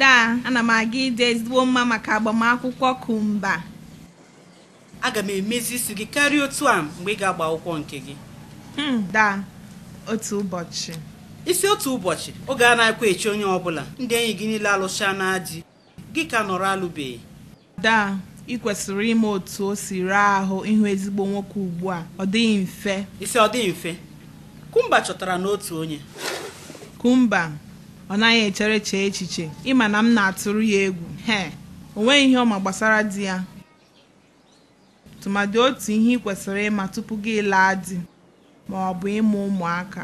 daa ana m aga ide ezigbo mma maka agbamakwụkwọ kumba aga m emezi isi gị karịa otu a mgbe ị ga-agba akwụkwọ nke gị hmm, daa otu ụbọchị isi otu ụbọchị oge a na akwa echi onye ọbụla ndị enyi gị niile alụcha na ji gị ka nọrọ alụbeghị daa ị kwesịrị ime otu o si ree ahụ ịhụ ezigbo nwoke ugbu a ọ dịghị mfe isi ọ dịghị mfe kumba chọtara n'otu onye kumba ọ naghị echere chee echiche ịma na m na-atụrụ ya egwu he o nweghị ihe ọma gbasara di ya tụmadị otu ihe ị kwesịrị ịma tupu gị laa di ma ọ bụ ịmụ ụmụaka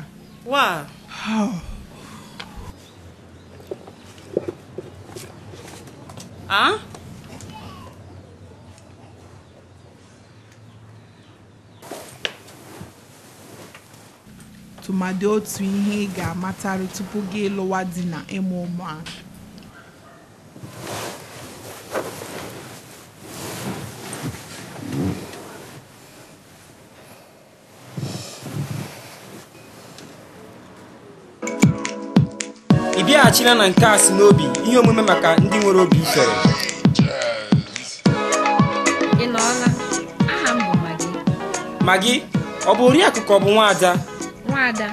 tụmadị otu ihe ị ga-amatarị tupu gị ịlụwa dị na ịmụ ụmụaka ị bịaghachila na nke a si n'obi ihe omume maka ndị nwere obi ifere ị nọọla aha bụ Maggie Maggie ọ bụ oriakụ bụ nwaada nwaada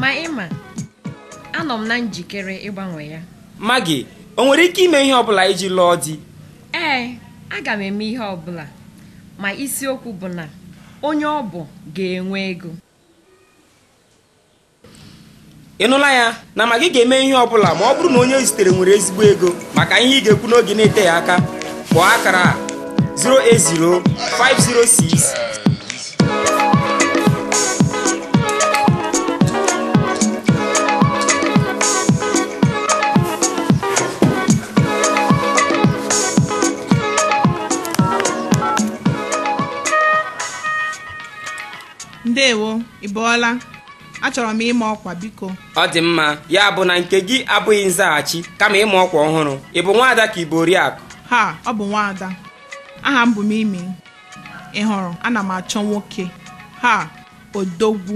ma ịma anọ m na njikere ịgbanwe ya Magị o nwere ike ime ihe ọbụla iji lụọ di ee aga m eme ihe ọbụla ma isiokwu bụ na onye ọ bụ ga-enwe ego ị nụla ya na Magị ga-eme ihe ọbụla ma ọ bụrụ na onye o zitere nwere ezigbo ego maka ihe ị ga-ekwu n'oge na-eteghị aka kpọọ akara 080 506 ndewo ị achọrọ m ịma ọkwa biko ọ dị mma ya bụ na nke gị abụghị nzaghachi kama ịma ọkwa ọhụrụ ị bụ nwaada ka ibo oriakụ ha ọ bụ nwaada aha m bụ m imi ị hụrụ ana m achọ nwoke ha odogwu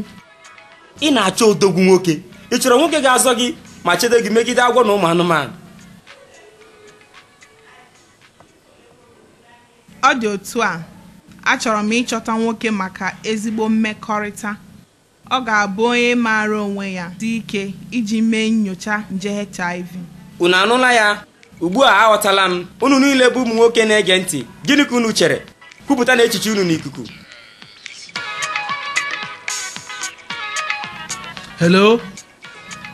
ị na-achọ odogwu nwoke ị chọrọ nwoke ga-azọ gị ma chedo gị megide agwọ na ụmụ anụmanụ ọ dị otu a achọrọ m ịchọta nwoke maka ezigbo mmekọrịta ọ ga-abụ onye maara onwe ya dị ike iji mee nyocha nje HIV unu anụla ya ugbu a aghọtala m unu niile bụ ụmụ nwoke na-ege ntị gịnị ka unu chere kwupụta na echiche unu n'ikuku hello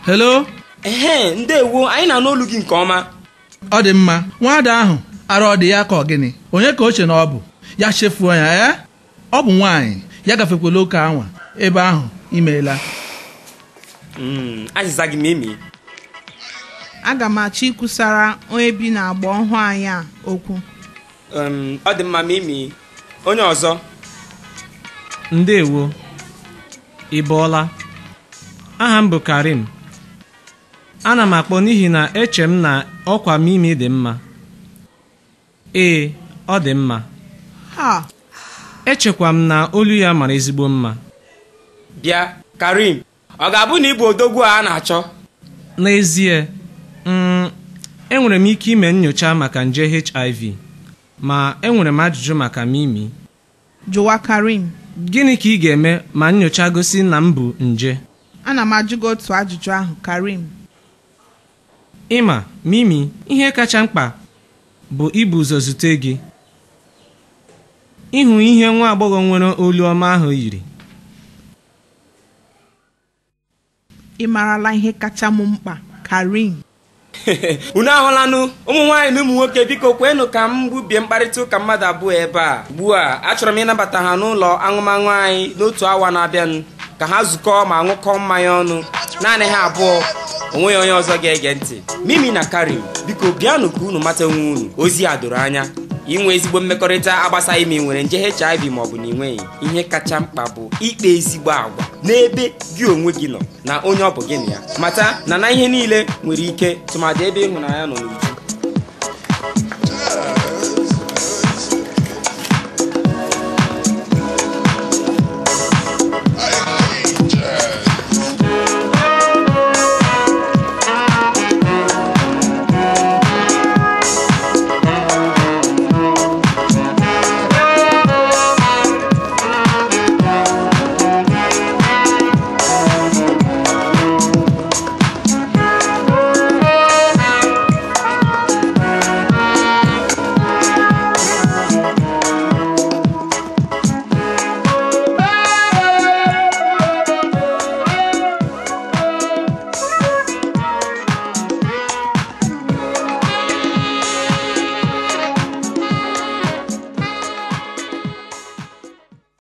hello ehe ndewo anyị na-anụ olu gị nke ọma ọ dị mma nwaada ahụ arụ ọ dị ya ka ọ gịnị onye ka o che na ọ bụ ya chefuo ya ee eh? ọ bụ nwanyị ya gafekwala oke anwa ebe ahụ imeela hmm, gị aga m achọ ịkwụsara onye bi agba ọhụụ anyị a okwu ọ dị mma mimi onye ọzọ ndewo ị aha m bụ karim ana m akpọ n'ihi na eche m na ọkwa mimi dị mma ee ọ dị mma Ah. echekwa m na olu ya mara ezigbo mma bịa karim ọ ga-abụ na ịbụ odogwu a na-achọ n'ezie mm, enwere m ike ime nyocha maka nje hiv ma enwere m ajụjụ maka mimi jụwa karim gịnị ka ị ga-eme ma nyocha gosi na m bụ nje ana m ajụ gị otu ajụjụ ahụ karim ịma mimi ihe kacha mkpa bụ ibu ụzọ zute gị ịhụ ihe nwa agbọghọ nwere olu ọma ahụ yiri ị marala ihe kacha m mkpa Karim unu ahụlanụ ụmụ nwaanyị na ụmụ nwoke biko kwenụ ka m gbubie mkparịta ụka mmadụ abụọ ebe a ugbu a achọrọ m ịnabata ha n'ụlọ aṅụmaṅụ anyị n'otu awa na-abịanụ ka ha zukọọ ma ṅụkọọ mmanya ọnụ naanị ha abụọ onweghị onye ọzọ ga-ege ntị mimi na Karim biko bịanụ ka unu mata onwe unu ozi a doro anya inwe ezigbo mmekọrịta agbasaghị ma nwere nje HIV maọbụ na ị nweghị ihe kacha mkpa bụ ikpe ezigbo agwa n'ebe gị onwe gị nọ na onye ọ bụ gị na ya mata na na ihe niile nwere ike tụmadị ebe ịhụnanya nọ n'uju